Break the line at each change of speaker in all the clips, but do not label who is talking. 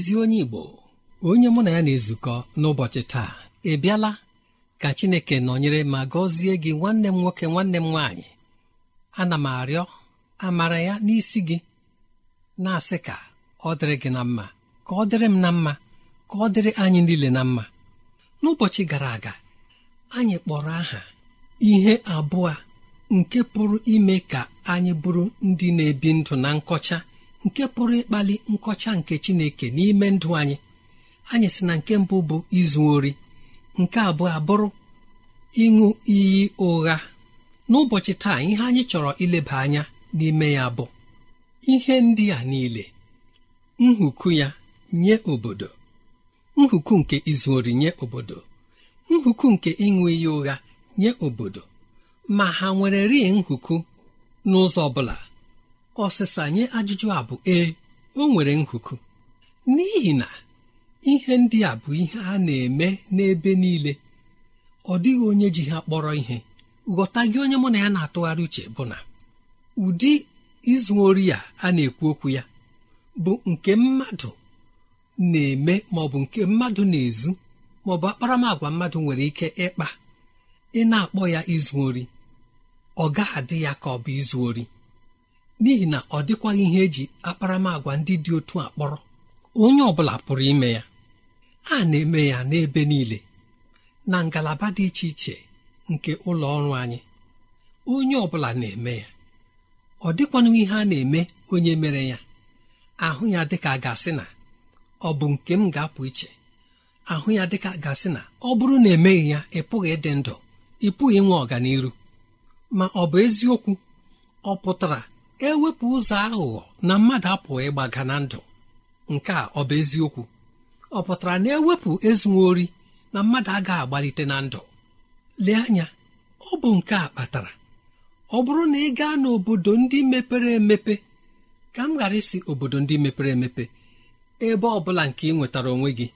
ezi onye igbo onye mụ na ya na-ezukọ n'ụbọchị taa ị bịala ka chineke nọnyere ma gọzie gị nwanne m nwoke nwanne m nwaanyị ana m arịọ amara ya n'isi gị na-asị ka ọ dịrị gị na mma ka ọ dịrị m na mma ka ọ dịrị anyị niile na mma n'ụbọchị gara aga anyị kpọrọ aha ihe abụọ nke pụrụ ime ka anyị bụrụ ndị na-ebi ndụ na nkọcha nke pụrụ ịkpali nkọcha nke chineke n'ime ndụ anyị anyị sị na nke mbụ bụ izu ori nke abụọ abụrụ ịṅụ iyi ụgha n'ụbọchị taa ihe anyị chọrọ ileba anya n'ime ya bụ ihe ndị a niile nhuku ya nye obodo nhuku nke izu ori nye obodo nhuku nke ịṅụ iyi ụgha nye obodo ma ha nwere rie nhuku n'ụzọ ọ bụla ọsịsa nye ajụjụ a bụ ee o nwere nkuku." n'ihi na ihe ndị a bụ ihe a na-eme n'ebe niile ọ dịghị onye ji ha kpọrọ ihe ghọta gị onye mụ na ya na-atụgharị uche bụ na ụdị izu ori a a na-ekwu okwu ya bụ nke mmadụ na-eme maọbụ nke mmadụ na-ezu ma ọ bụ akparamagwa mmadụ nwere ike ịkpa ị na-akpọ ya izu ori ọ gaghị adị ya ka ọ bụ izu ori n'ihi na ọ dịkwaghị ihe eji akparamagwa ndị dị otu a kpọrọ onye ọ bụla pụrụ ime ya a na-eme ya n'ebe niile na ngalaba dị iche iche nke ụlọ ọrụ anyị onye ọ bụla na-eme ya ọ dịkwanụ ihe a na-eme onye mere ya ahụ ya dịka gasị na ọ bụ nke m ga-apụ iche ahụ ya dịka gasị na ọ bụrụ na emeghị ya ị pụghị ịdị ndụ ị pụghị inwe ọganiru ma ọ bụ eziokwu ọ pụtara ewepụ ụzọ aghụghọ na mmadụ apụghị ịgbaga na ndụ nke a ọ bụ eziokwu ọ pụtara na ewepụ ezuori na mmadụ agaghị agbalite na ndụ lee anya ọ bụ nke a kpatara ọ bụrụ na ị gaa n'obodo ndị mepere emepe ka m ghara isi obodo ndị mepere emepe ebe ọ bụla nke ị nwetara onwe gị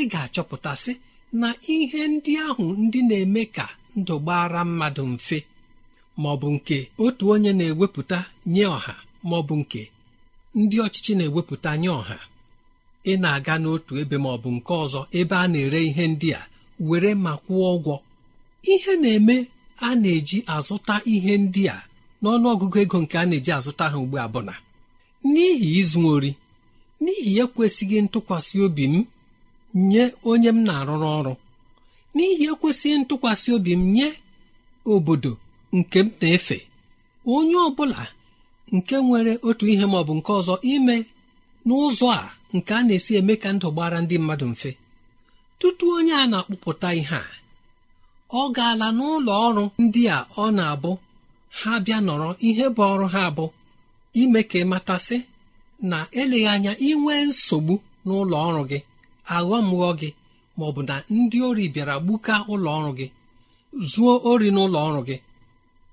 ị ga-achọpụtasị na ihe ndị ahụ ndị na-eme ka ndụ gbara mmadụ mfe ma ọ bụ nke otu onye na-ewepụta nye ọha ma ọ bụ nke ndị ọchịchị na-ewepụta nye ọha ị na-aga n'otu ebe ma ọ bụ nke ọzọ ebe a na-ere ihe ndị a were ma kwụọ ụgwọ ihe na-eme a na-eji azụta ihe ndị a n'ọnụ ọgụgụ ego nke a na-eji azụta ha ugbu a bụla. n'ihi izu n'ihi ekwesịghị ntụkwasị obi m nye onye m na-arụrụ ọrụ n'ihi ekwesịghị ntụkwasị obi m nye obodo nke m na-efe onye ọ bụla nke nwere otu ihe ma ọ bụ nke ọzọ ime n'ụzọ a nke a na-esi eme ka ndụ gbara ndị mmadụ mfe tutu onye a na-akpụpụta ihe a ọ gaala n'ụlọ ọrụ ndị a ọ na-abụ ha bịa nọrọ ihe bụ ọrụ ha abụ ime ka matasị na eleghị anya inwe nsogbu n'ụlọ ọrụ gị aghọmghọ gị ma ọ bụ na ndị ori bịara gbuka ụlọ ọrụ gị zuo ori n'ụlọ ọrụ gị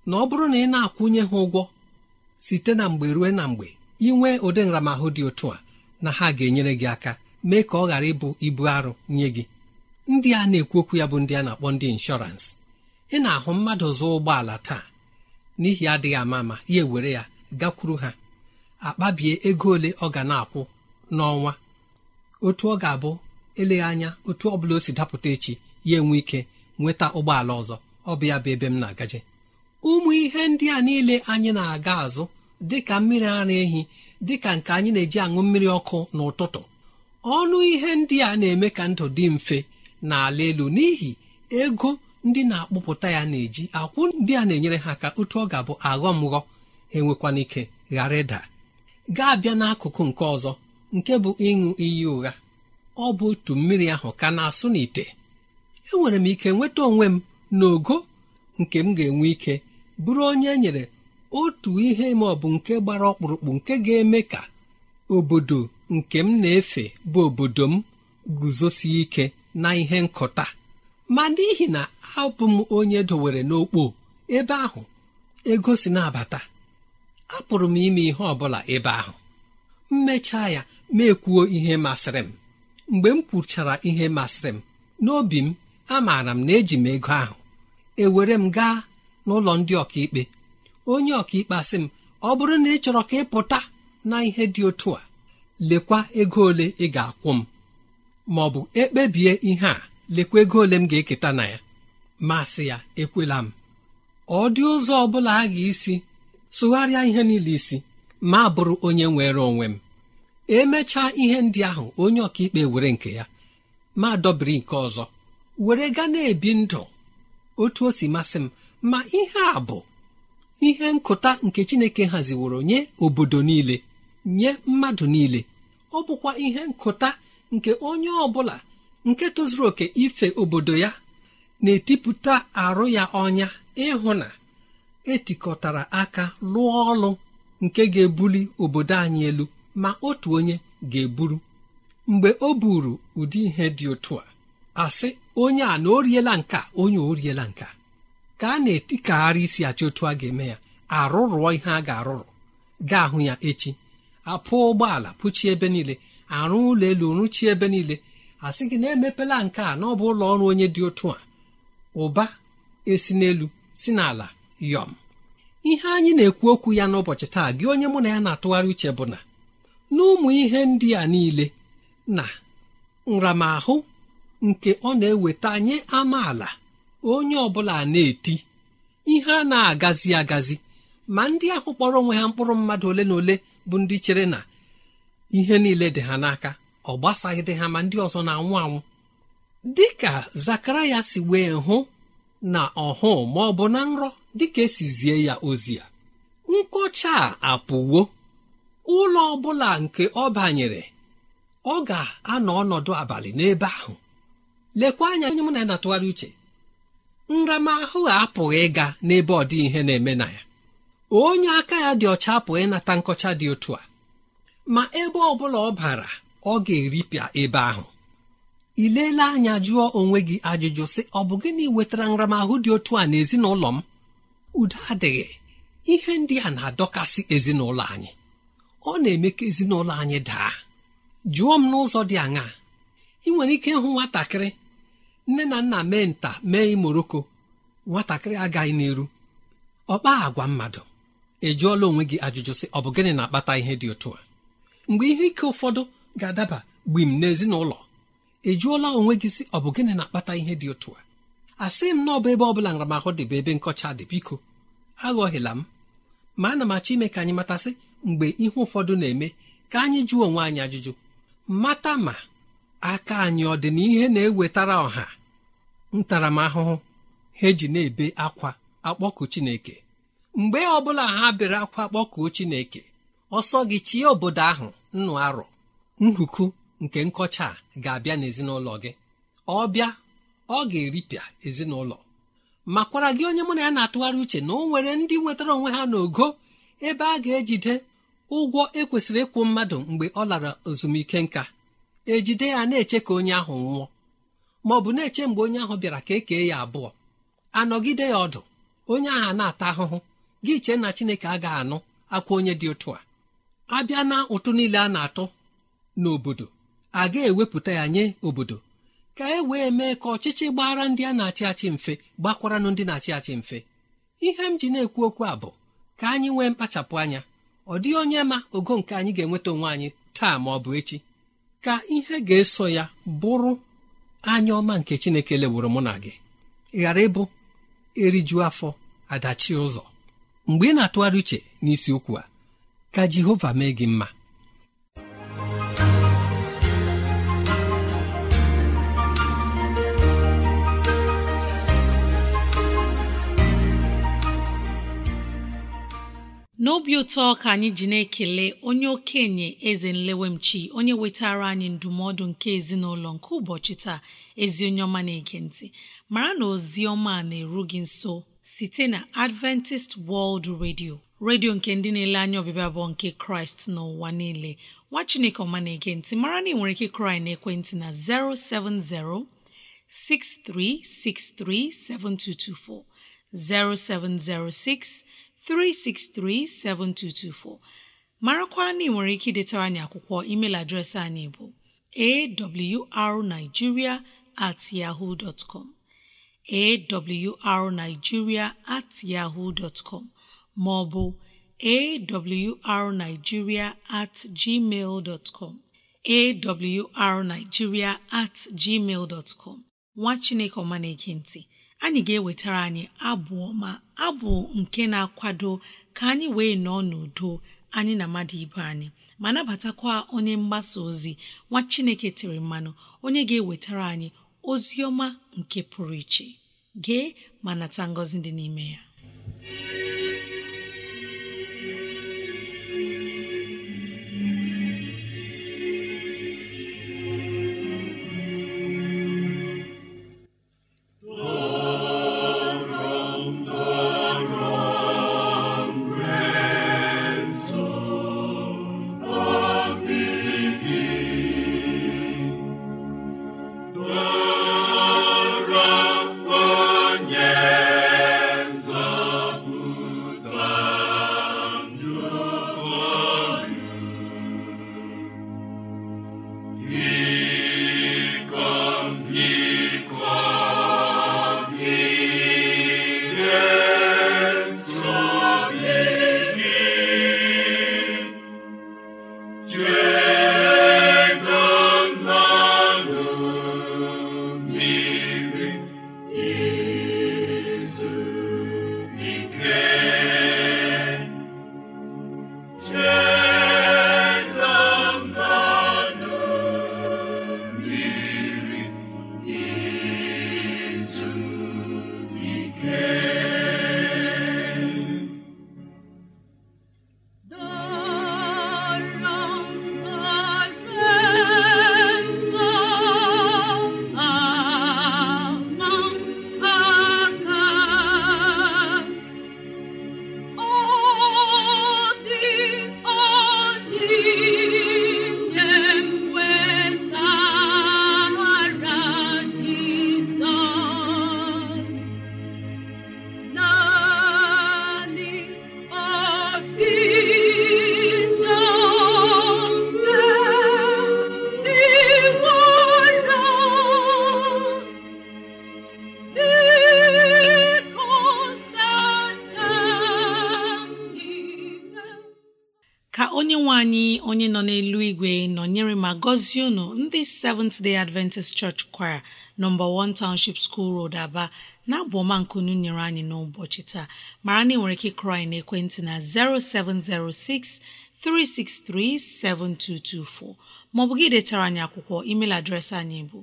na ọ bụrụ na ị na-akwụnye ha ụgwọ site na mgbe ruo na mgbe ị nwee ụdị nramahụ dị otu a na ha ga-enyere gị aka mee ka ọ ghara ịbụ ibu arụ nye gị ndị a na-ekwu okwu ya bụ ndị a na-akpọ ndị inshọransị ị na-ahụ mmadụ zụọ ụgbọala taa n'ihi adịghị ama ama ya ewere ya gakwuru ha akpabie ego ole ọ ga na-akwụ n'ọnwa otu ọ ga-abụ eleghị anya otu ọ bụla o si dapụta echi ya enwe ike nweta ụgbọala ọzọ ọ bụ ya bụ ebe m na-agaje ụmụ ihe ndị a niile anyị na-aga azụ dịka mmiri ara ehi dịka nke anyị na-eji aṅụ mmiri ọkụ n'ụtụtụ ọnụ ihe ndị a na-eme ka ndụ dị mfe n'ala elu n'ihi ego ndị na-akpụpụta ya na-eji akwụ ndị a na-enyere ha ka otu ọ ga-abụ aghọmghọ ha enwekwana ike ghara ịda gaa abịa n'akụkụ nke ọzọ nke bụ ịṅụ iyi ụgha ọ bụ otu mmiri ahụ ka na-asụ n'ite enwere m ike nweta onwe m n'ogo nke m ga-enwe ike bụrụ onye nyere otu ihe ma ọ bụ nke gbara ọkpụrụkpụ nke ga-eme ka obodo nke m na-efe bụ obodo m guzosie ike na ihe nkụta ma n'ihi na abụ m onye dowere n'okpo ebe ahụ ego si na-abata apụrụ m ime ihe ọ bụla ebe ahụ mechaa ya ma ihe masịrị m mgbe m kwuchara ihe masịrị m n'obi m amaara m na eji m ego ahụ ewere m gaa n'ụlọ ndị ọkaikpe onye ọkaikpe asị m ọ bụrụ na ị chọrọ ka ị pụta na ihe dị otu a lekwa ego ole ị ga-akwụ m ma ọ bụ ekpebie ihe a lekwa ego ole m ga-eketa na ya masị ya ekwela m ọ dị ụzọ ọ bụla a ga-esi sụgharịa ihe niile isi ma bụrụ onye nwere onwe m emechaa ihe ndị ahụ onye ọkaikpe were nke ya ma dọbiri nke ọzọ were gaa na-ebi ndụ otu o si masị m ma ihe a bụ ihe nkụta nke chineke haziworo nye obodo niile nye mmadụ niile ọ bụkwa ihe nkụta nke onye ọ bụla nke tozuru oke ife obodo ya na-etipụta arụ ya ọnya ịhụ na etikọtara aka lụọ ọlụ nke ga-ebuli obodo anyị elu ma otu onye ga-eburu mgbe o buru ụdị ihe dị otu a asị onye a na o riela nka onye o riela nka ka a na-etikagharị isi achị otu a ga-eme ya arụrụọ ihe a ga-arụrụ gaa hụ ya echi apụ ụgbọala pụchie ebe niile arụ ụlọ elu rụchie ebe niile a sị gị na emepela nke a n'ọbụ ụlọ ọrụ onye dị otu a ụba esi n'elu si n'ala yọm ihe anyị na-ekwu okwu ya n'ụbọchị taa gị onye mụ na ya na-atụgharị uche bụ na n'ụmụ ihe ndị a niile na nramahụ nke ọ na-eweta nye amaala onye ọbụla na-eti ihe a na-agazi agazi ma ndị ahụ kpọrọ onwe ha mkpụrụ mmadụ ole na ole bụ ndị chere na ihe niile dị ha n'aka ọ dị ha ma ndị ọzọ na-anwụ anwụ dị ka ya si wee hụ na ọhụụ ma ọ bụ na nrọ dịka e zie ya ozi a nkọcha a apụwo ụlọ ọbụla nke ọ banyere ọ ga-anọ ọnọdụ abalị n'ebe ahụ lekwa anya onye mụ na ya na-atụgharị uche nramahụ apụghị ịga n'ebe ọ dị ihe na-eme na ya onye aka ya dị ọcha apụghị ịnata nkọcha dị otu a ma ebe ọ bụla ọ bara ọ ga-eripịa ebe ahụ ị leela anya jụọ onwe gị ajụjụ sị ọ bụ gịnị wetara nramahụ dị otu a n'ezinụlọ m udo adịghị ihe ndị a na-adọkasị ezinụlọ anyị ọ na-eme ka ezinụlọ anyị daa jụọ m n'ụzọ dị aṅaa ị nwere ike ịhụ nwatakịrị nne na nna mee nta mee imoroko nwatakịrị agaghị n'iru ọkpa agwa mmadụ ejụọla onwe gị ajụjụ sị ọ bụ gịnị na-akpata ihe dị otu a mgbe ihe ike ụfọdụ ga-adaba gbim n'ezinụlọ ejụọla onwe gị sị ọ bụ gịnị na-akpata ihe dị otu a asị m na ọ bụ ebe ọ bụla nramahụ dị bụ ebe nkọcha dị biko aghọghịla m ma ana m achọ ime ka anyị matasị mgbe ihe ụfọdụ na-eme ka anyị jụọ onwe anyị ajụjụ mata ma aka anyị ọ dị na-ewetara ọha ntaramahụhụ ha eji na-ebe akwa akpọku chineke mgbe ọ bụla ha bere akwa akpọkuo chineke ọsọ gị chie obodo ahụ nnụ arọ nhuku nke nkọcha ga-abịa n'ezinụlọ gị ọ bịa ọ ga-eripịa ezinụlọ makwara gị onye mụ na ya na-atụgharị uche na o nwere ndị nwetara onwe ha n'ogo ebe a ga-ejide ụgwọ ekwesịrị ịkwụ mmadụ mgbe ọ lara ezumike nka ejide ya na-eche ka onye ahụ nwụọ ma ọ bụ na-eche mgbe onye ahụ bịara ka e kee ya abụọ anọgide ya ọdụ onye ahụ na-ata ahụhụ gị chee na chineke agaghị anụ akwa onye dị otu a abịa na ụtụ niile a na-atụ n'obodo a ga-ewepụta ya nye obodo ka e wee mee ka ọchịchị gbara ndị a na-achị achị mfe gbakwaranụ ndị na-achị achị mfe ihe m ji na-ekwu okwu a bụ ka anyị nwee mkpachapụ anya ọ dịghị onye ma ogo nke anyị ga-enweta onwe anyị taa ma ọ bụ echi ka ihe ga-eso ya bụrụ anya ọma nke chineke leworo mụ na gị ghara ịbụ eriju afọ adachi ụzọ mgbe ị na-atụgharị uche n'isi n'isiokwu a ka jehova mee gị mma
n'obi ụtọ ka anyị ji na-ekele onye okenye eze nlewemchi onye wetara anyị ndụmọdụ nke ezinụlọ nke ụbọchị taa ezi onye ọma na-ege mara na ozi ọma na-eru gị nso site na Adventist World Radio redio nke ndị na-ele anya ọbịbịa abụọ nke kraịst n'ụwa niile nwa chineke ọma na-ege mara na ị nwere ike kraị na ekwentị na 070 6363 7224 0706 363-7224 marakwa na ị nwere ike idetara anyị akwụkwọ email adreesị anyị bụ awrnigeria at yahoo at yahoo maọbụ ma ọ bụ awrnigeria at gmail dot at gmail nwa chineke ọma na anyị ga-ewetara anyị abụ ọma abụ nke na-akwado ka anyị wee nọọ n'udo anyị na mmadụ ibe anyị ma nabatakwa onye mgbasa ozi nwa Chineke tiri mmanụ onye ga-ewetara anyị ozi ọma nke pụrụ iche gee ma nata ngọzi dị n'ime ya ka onye nwe anyị onye nọ n'elu igwe nọnyere ma gọzie unu ndị Seventh Day Adventist Church Choir nọmba 1 Township School Road Aba na-abụ ọma nkunu nyere anyị n'ụbọchị taa mara na ị nwere ike kụrụ anyị ekwentị na 0706 363 7224 maọbụ gị detara anyị akwụkwọ email adreesị anyị bụ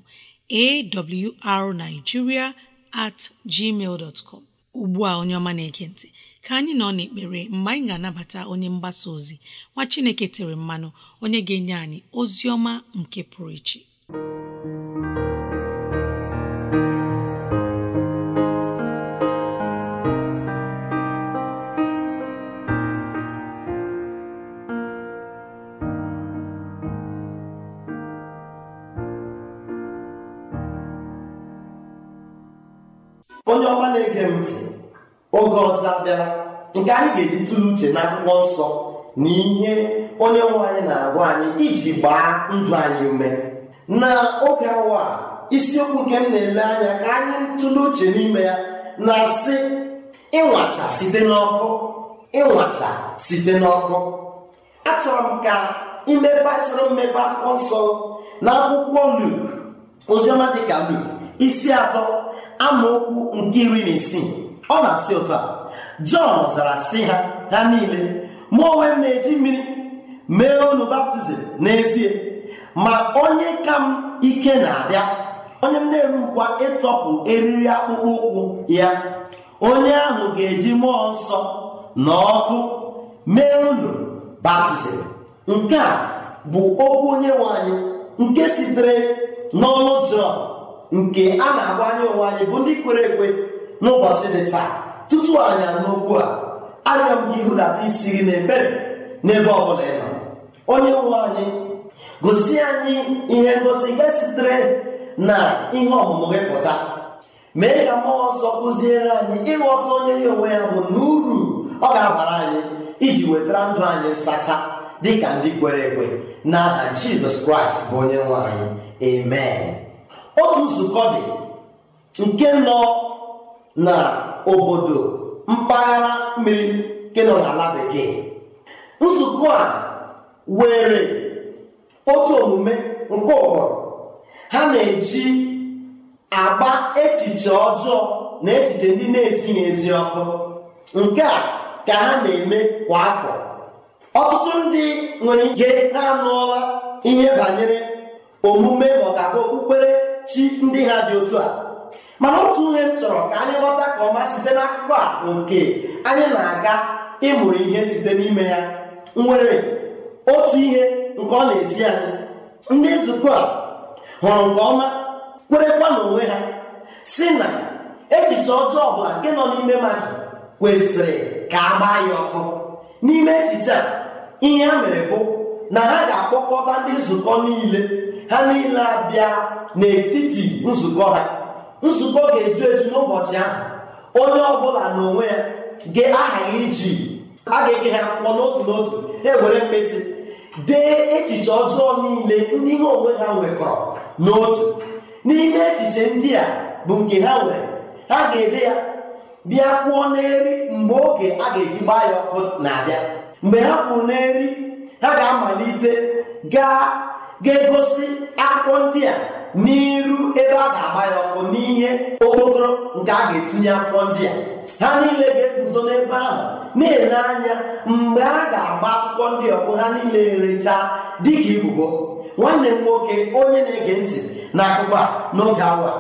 awrnigeria at gmail dot com ugbu a onye ọma na eke ntị ka anyị nọ n'ekpere mgbe anyị ga-anabata onye mgbasa ozi nwa Chineke tere mmanụ onye ga-enye anyị ozi ọma nke pụrụ iche
onye ọma na-ege m ntị oge ọzọ abịara nke anyị ga-eji tụle uche na akwụkwọ nsọ na ihe onye nwe anyị na-agwa anyị iji gbaa ndụ anyị ume na oge awa isiokwu nke m na-ele anya ka anyị tụle uche n'ime ya na-asị ịnwacha site n'ọkụ ịnwacha site n'ọkụ achọrọ m ka imeba soro mmepe akwụkwọ nsọ na akwụkwọ Luk oziọma dịka Luk isi atọ amaokwu nke iri na isii ọ na-asị ụtọ a jọn zara si ha ha niile mụ onwe m na-eji mmiri mee unu baptizim n'ezie ma onye ka m ike na-abịa onye m na-eru ịtọpụ eriri akpụkpọ ụkwụ ya onye ahụ ga-eji mmụọ nsọ na ọkụ mee unu baptizim nke a bụ okwu onye nwanyị, nke sitere n'ọnụ jọn nke a na-agwa anya onwe anyị bụ ndị kwere ekwe n'ụbọchị dị taa tutu anyị n'okwu a arịọ m gị isi gị n'ebere n'ebe ọ bụla ịnọ onye nwe anyị gosi anyị ihe ngosi nke sitere na ihe ọmụmụ gị pụta mee ka mmụọ nsọ kụziere anyị ịghọta onye ya onwe ya bụ na uru ọ ga-abara anyị iji wetara ndụ anyị nsacha dị ka ndị kwere ekwe n'aha Jizọs Kraịst bụ onye nwe anyị amen otu nzukọ dị nke nọ na obodo mpaghara mmiri nke nọ n'ala bekee nzukọ a were otu omume nke ụkpọrọ ha na-eji akpa echiche ọjọọ na echiche ndị na ezighị ezi ọkụ nke a ka ha na-eme kwa afọ ọtụtụ ndị nwere ike ha anụọla ihe banyere omume maka okpukpere chi ndị ha dị otu a mana otu ihe m chọrọ ka anyị ghọta ka ọma site n'akụkọ a nke anyị na-aga ịmụrụ ihe site n'ime ya nwere otu ihe nke ọ na-esi anyị ndị nzukọ a hụrụ nke ọma kwerekwa n'onwe ha si na echiche ọjọọ ọbụla nke nọ n'ime mmadụ kwesịrị ka a gbaa ya ọkụ n'ime echiche a ihe ha mere bụ na ha ga-akpọkọta ndị nzukọ niile ha niile abịa n'etiti nzukọ ha nzukọ ga-eju eju n'ụbọchị ahụ onye ọbụla n'onwe ya ga-ahaghị iji a ga-eke ha akwụkwọ n'otu n'otu ewere mkpesị dee echiche ọjọọ niile ndị ihe onwe ha nwekọrọ n'otu n'ime echiche ndị a bụ nke ha nwere ha ga-ede ya bịa kwuo n'eri mgbe oge a ga-eji gbaa ya ọkụ na-abịa mgbe ha kwuru n'eri ha ga-amalite gaa ga-egosi akwụkwọ ndị a n'iru ebe a ga-agba ya ọkụ n'ihe okpokoro nke a ga-etinye akwụkwọ ndị a ha niile ga-eguzo n'ebe ahụ na-ele anya mgbe a ga-agba akwụkwọ ndị ọkụ ha niile erechaa dịka ibubo nwanne m nwoke onye na-ege ntị na akụkọ a n'oge awa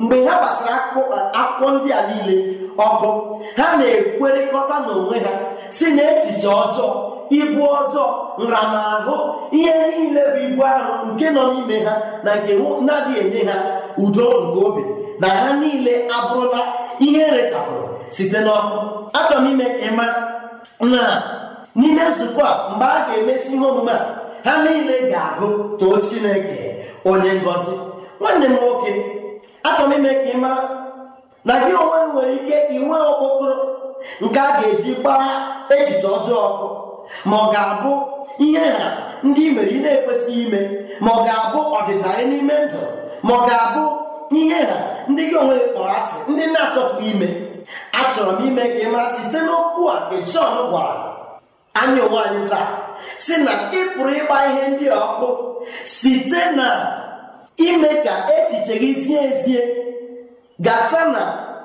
mgbe ha gbasara akwụkwọ ndị a niile ọkụ ha na-ekwerịkọta n'onwe ha si na echiche ọjọọ ibu ọjọọ nramahụ ihe niile bụ ibu arụ nke nọ n'ime ha na nke na-adịghị enye ha udo nke obi na ha niile abụrụla ihe rechapụrụ site n'ọkụ achọrọ m ime ịma na n'ime nzukọ a mgbe a ga-emesi ihe omume a ha niile ga-agụ too chineke onye ngọzi nwanne m nwoke achọrọ m ime ka ị mara na gị onwe nwere ike inwe okpokoro nke a ga-eji gbaa echiche ọjọọ ọkụ ma ọ ga-abụ ihe ha ndị mere ị na-ekwesịghị ime ma ọ ga-abụ ọdịda anyị n'ime ndụ ma ọ ga-abụ ihe ha ndị gị onwe kpọrọ asị ndị na-achọpụghị ime achọrọ m ime ka ị mara site n'okwu a nke Jọn gwara anyị onwe anyị taa si na ị pụrụ ịgba ihe ndị ọkụ site na ime ka echiche gị zie ezie gata na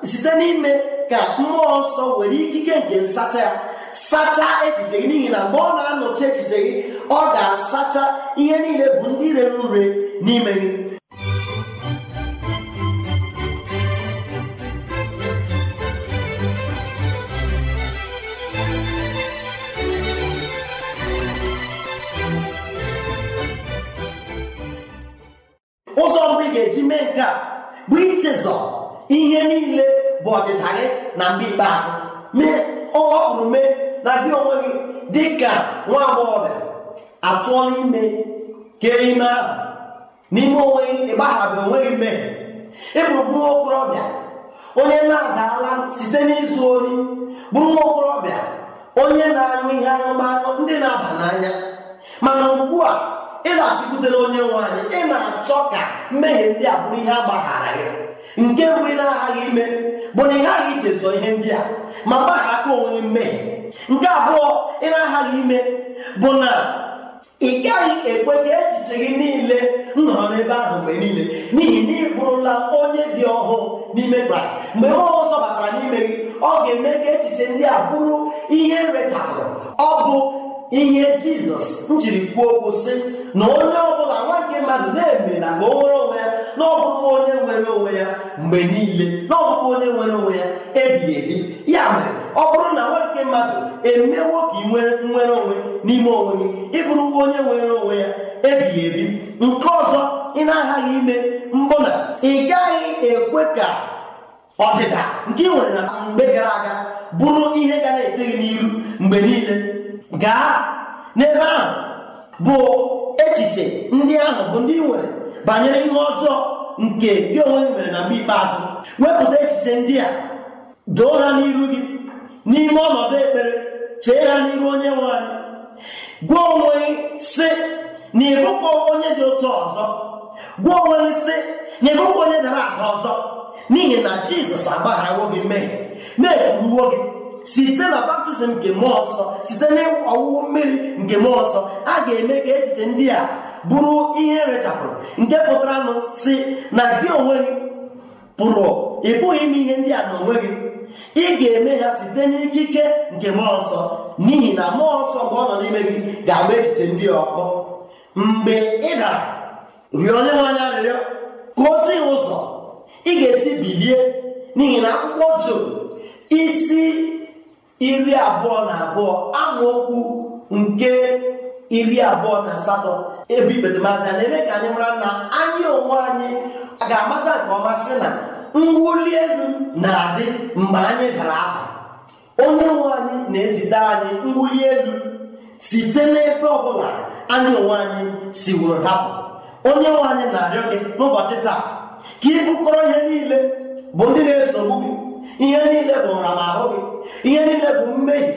site n'ime ka mmụọ nsọ were ikike nke nsacha ya sacha echiche gị n'ihi na mgbe ọ na-anọchi echiche gị ọ ga-asacha ihe niile bụ ndị rere ure n'ime gị ụzọ mbụ ga-eji mee nke a bụ ichezọ ihe niile bụ ọdịda gị na mgbe ikpeazụ mee ọkpụrụ mee na gị onwe gị dị ka nwa agbọghọbịa atụọla ime kee ime ahụ n'ime onwe gị ịgbahara onwe gị mmehie Ịbụ bụ okorobịa onye na-adaala site n'izu oyi bụ nwa okorobịa onye na-aṅụ ihe anụmanụ ndị na-aba n'anya mana ugbu a ị na onye nwe anyị ị na-achọ ka mmehie ndị a bụrụ ihe agbaghara gị nke mgbe ị na-aghaghị ime bụ na ị ghaghị ichezo ihe ndị a ma gbaghara aka onwe gị mmehie nke abụọ ị aghaghị ime bụ na ị gaghị ekwe ka echiche gị niile nọrọ n'ebe ahụ mgbe niile n'ihi na ị bụrụla onye dị ọhụụ n'ime Kraịst mgbe mmụọ nsọ batara n'ime gị ọ ga-eme ka echiche ndị a bụrụ ihe rechapụrụ ọ bụ ihe jizọs njiri kwuo okwu sị na onye ọ bụla nwa nke mmadụ na-emela ka o nwere onwe ya na ọ onye nwere onwe ya mgbe niile na ọ onye nwere onwe ya ebighị ebi ya mere ọ bụrụ na nwa nke mmadụ emewo ka ị nwere nwere onwe n'ime onwe gị ịbụrụ onye nwere onwe ya ebighị ebi nke ọzọ ị na-aghaghị ime mbụ na ị gaghị ekwe ka ọdịda nke ị nwere na mgbe gara aga bụrụ ihe ga na-ete gị n'iru mgbe niile gaa n'ebe ahụ bụ echiche ndị ahụ bụ ndị nwere banyere ihe ọjọọ nke gị onwe gị mere na mgbe ikpeazụ wepụta echiche ndị a doo ha n'iru gị n'ime ọnọdụ ekpere chee ha n'iru onye nwe anyị gwa onwe gị sị na ịbụkwa onye dị otu ọzọ gwa onwe gị sị na ịbụkwa onye dara ada ọzọ n'ihi na jizọs agbaghara gị mmehie na-ekwuruwo gị site na baptizim nke mmụọ nsọ site na ọwụwụ mmiri nke mmụọ nsọ a ga-eme ka echiche ndị a bụrụ ihe erechapụrụ nke pụtara nụ si na gị onwe gị pụrụ ị pụghị ime ihe ndị a na onwe gị ị ga-eme ya site n'ikike nke mmụọ nsọ n'ihi na mmụọ nsọ mgbe ọ nọ n'ime gị ga-agba echiche ndị ọkụ mgbe ị dara rịọ onye nwe anya arịrịọ ka o si ụzọ ị ga-esi bilie n'ihi na akwụkwọ Job isi iri abụọ na abụọ amaokwu nke iri abụọ na asatọ ebe ikpetemazị na-eme ka anyị mara na anyị onwe anyị ga-amata nke ọma sị na mwuli elu na-adị mgbe anyị dara ada onye nwe anyị na-ezite anyị mwuli elu site n'ebe ọbụla anyị onwe anyị si wụrụ dapụ onye nwe anyị na-arịọ gị n'ụbọchị taa ka ị bụkọrọ ihe niile bụ ndị na-esogbu gị ihe niile bụ nramahụ gị ihe niile bụ mmehie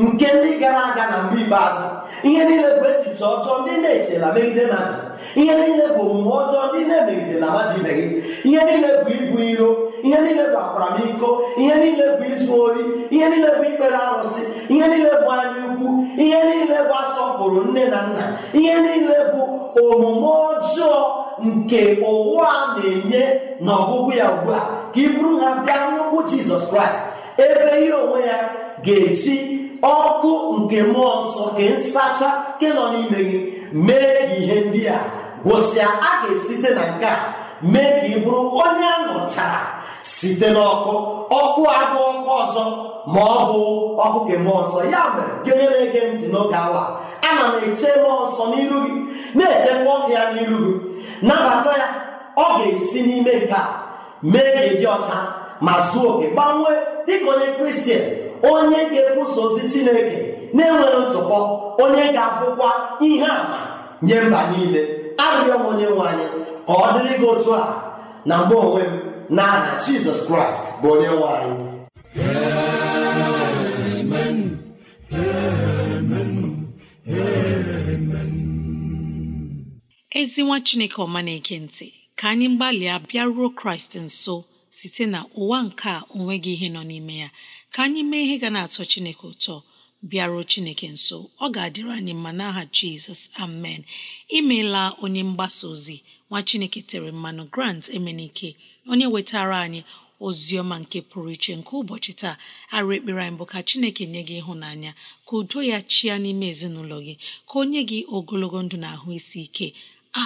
nke ndị gara aga na mgbe ikpeazụ ihe niile bụ echiche ọjọọ ndị na-echela megide mmadụ ihe niile bụ omume ọjọọ ndị na-emegidela mmadụ ibe gị ihe niile bụ ibu iro ihe niile bụ akwaramiko ihe niile bụ izu ori ihe niile bụ ikpere arụsị ihe niile bụ anya ukwu ihe niile bụ asọpụrụ nne na nna ihe niile bụ omume ọjọọ nke ụwa na-enye n'ọgwụgwụ ya ugbu a ka ị bụrụ ha bịa n'ụkwụ jizọs kraịst ebe ihe onwe ya ga echi ọkụ nke mmụọ nsọ nke nsacha nke nọ n'ime gị mee ihe ndị a gwụsịa a ga-esite na nke a mee ka ị bụrụ onye anọchara site n'ọkụ ọkụ abụ ọkụ ọzọ ma ọ bụ ọkụ ke mmụọ nsọ ya mere gị onye na-ege ntị n'oge awa ana m eche mmụọ nsọ n'iru gị na-echekwa ọkụ ya n'iru gị nabata ya ọ ga-esi n'ime nke a mee ka ịdị ọcha ma zuo oke gbanwee dịka onye kristian onye ga-ekwusa ozi chineke na-enweghị ntụpọ onye ga-abụkwa ihe àmà nye mba niile arịrịọ m onye nwe anyị ka ọ dịrị gị otu a na mgbe onwe m n'aha jizọs kraịst bụ onye nwe anyị
ezi nwa chineke ọma na-ege ntị ka anyị gbalịa bịaruo kraịst nso site na ụwa nke a gị ihe nọ n'ime ya ka anyị mee ihe ga na-atọ chineke ụtọ bịaruo chineke nso ọ ga-adịrị anyị mma n'aha jizọs amen imeela onye mgbasa ozi nwa chineke tere mmanụ grant emenike onye wetara anyị ozi ọma nke pụrụ iche nke ụbọchị taa arụ ekpere anyị bụ ka chineke nye gị ịhụnanya ka udo ya chia n'ime ezinụlọ gị ka o nye gị ogologo ndụ na ahụ isi ike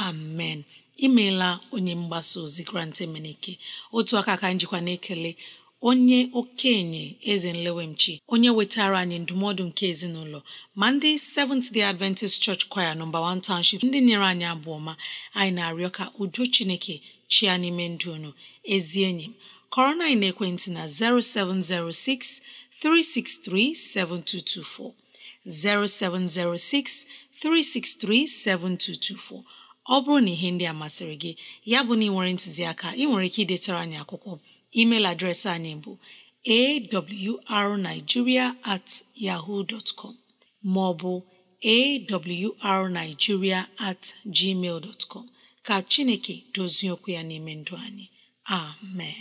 amen imeela onye mgbasa ozi grant emenike otu aka ka njikwa na-ekele onye okenye eze nlewemchi onye wetara anyị ndụmọdụ nke ezinụlọ ma ndị Seventh Day Adventist Church Choir nọmba 1 Township ndị nyere anyị abụọ ma anyị na-arịọ ka udo Chineke chia n'ime ndụ unu ezi enyi m kọrọ na ekwentị na 0706 363 7224 0706 363 7224 ọ bụrụ na ihe ndị a masịrị gị ya bụ na ị nwere ntụziaka ị nwere ike idetara anyị akwụkwọ email adreesị anyị bụ arigiria at yaho com ma ọ bụ awrnigeria@gmail.com. at gmail com ka Chineke dozie okwu ya n'ime ndụ anyị amen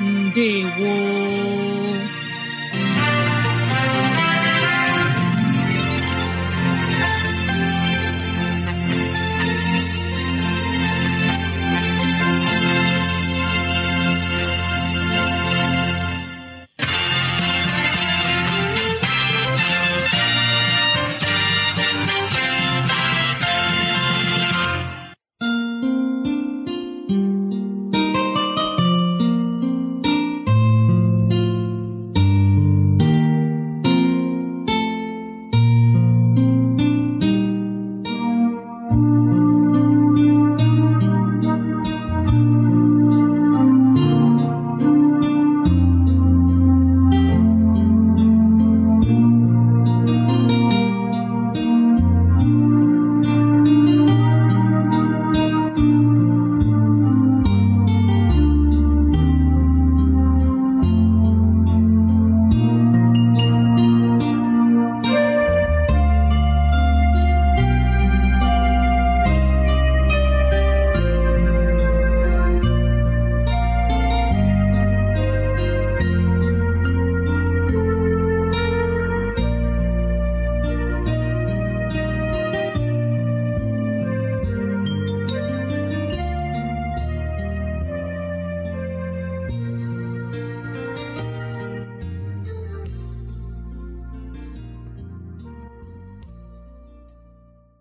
ndewo